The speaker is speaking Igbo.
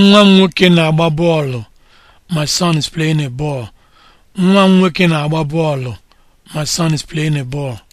nwa m nwoke na-agba bọọlụ my son is playing a ball ball